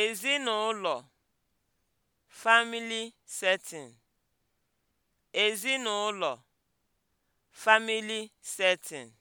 Ezinụlọ (family setting) setting)